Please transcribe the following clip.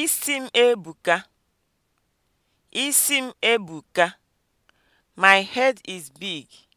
Isi m ebuka. Isi m ebuka. My head is big.